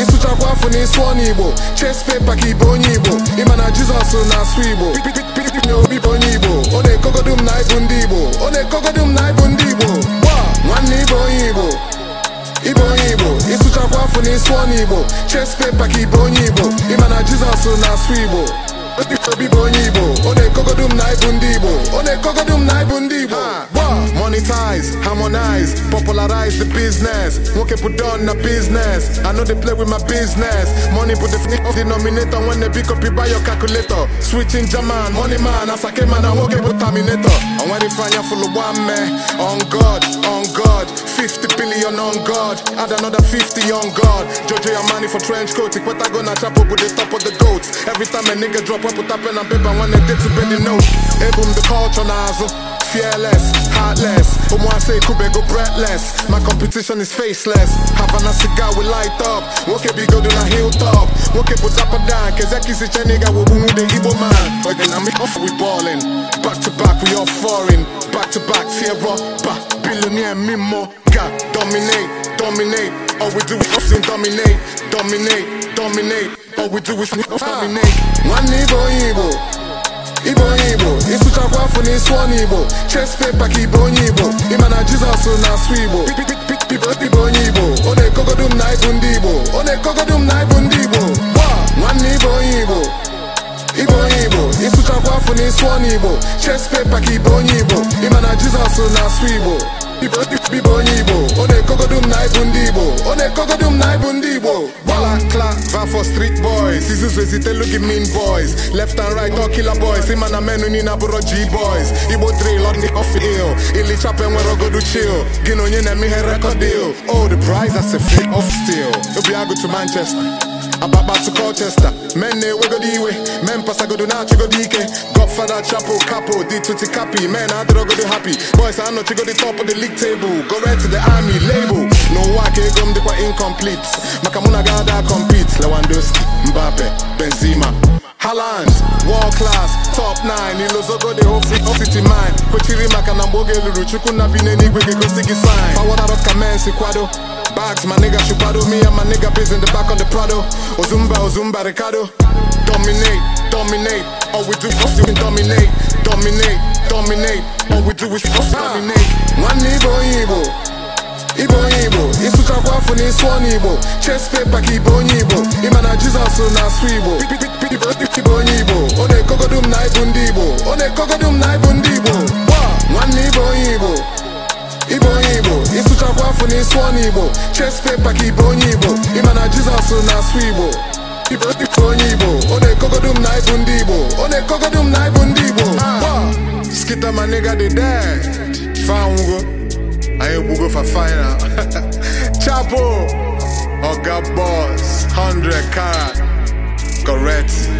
ịsụchakwa afọ igbo ches pepa ka onye igbo ịma na jizọs na-asụ igbo na obi bụ onye igbo ọ na-ekogodu m na ịbụ ndị igbo ọ na-ekogodu m na ịbụ ndị ji sụọ igbo chest paper ka ịbụ onye Igbo ịma na Jizọs na-asụ Igbo obi bụ onye Igbo ọ na-ekogodu m na ibu ndị Igbo ọ na-ekogodu m na ibu ndị Igbo harmonize, harmonize, popularize the business. Won't put on the business. I know they play with my business. Money put the f- denominator when they pick up you buy your calculator. Switching German, money man, as I came man, I won't get put terminator. And when they find you full of one man, on God, on God, 50 billion on God, add another 50 on God. Jojo your money for trench coat, what I gonna chop up with the top of the goats. Every time a nigga drop, I put up pen and paper when they did to bend the note. Hey boom, the culture nozzle. fearless, heartless. Um, I say go breathless. My competition is faceless. Havana cigar we light up. Woke big go na hilltop. Woke put up a down. Kezaki si chaniga wo boom the Igbo man. Again, I'm off we ballin'. Back to back we all foreign. Back to back Sierra. Back billionaire Mimo. God dominate, dominate. All we do is dominate, dominate, dominate. All we do is dominate. One Igbo Igbo. sụọ n'Igbo chest paper ka ibe onye Igbo ịma na Jizọs na-asụ Igbo ibe onye Igbo ọ na-ekogodu m na ịbụ ndị Igbo ọ na na ịbụ ndị Igbo nwanne ibe onye Igbo ibe onye Igbo ịsụchakwa afọ na ịsụọ n'Igbo chest paper ka ibe onye Igbo ịma na Jizọs na-asụ Igbo bibo onye igbo ọ na-ekogodu m na ndị igbo ọ na-ekogodu m na ibu ndị igbo gbala klava for street boys izuzu ezitelu gị mean boys left and right all boys ịma na menu niile g boys igbo drill on the off ill ilichapa enwere ogodu chill gị na onye na-eme ihe record deal Old oh, the prize as a free off manchester Ababa to Colchester, men na-ewego iwe men pasagodo na-achịgodo ike Godfather Chapo Capo dị tuti kapi men adịrọgodo happy boys anọchigodo top of the league table go red to the army label ka ego m dịkwa incomplete maka mụ na gada compete Lewandowski Mbappe Benzema Haaland, world class, top 9 Ilozogo ofici whole city mine kwechiri maka na mgbe oge lụrụ Chukwu na sign ka men kwado Bags, my nigga Chupado Me and my nigga biz in the back on the Prado Ozumba, Ozumba, Ricardo Dominate, dominate All we do is fucking dominate Dominate, dominate All we do is fucking dominate Nwanne Igbo Igbo Igbo Igbo Ịsụchakwa chakwa na ịsụ ọnụ Igbo Chest paper ka Igbo onye Igbo Ịma na Jizọs na-asụ Igbo Igbo onye afụ n'isi na igbo chest paper ka ibe onye igbo ịma na jizọs na-asụ igbo ife onye igbo ọ na-ekogodu m na ịbụ ndị igbo ọ na-ekogodu m na ịbụ ndị igbo skita ma nigga dị dead fanwugo anyị gbugo fa final chapo oga boss 100 karat correct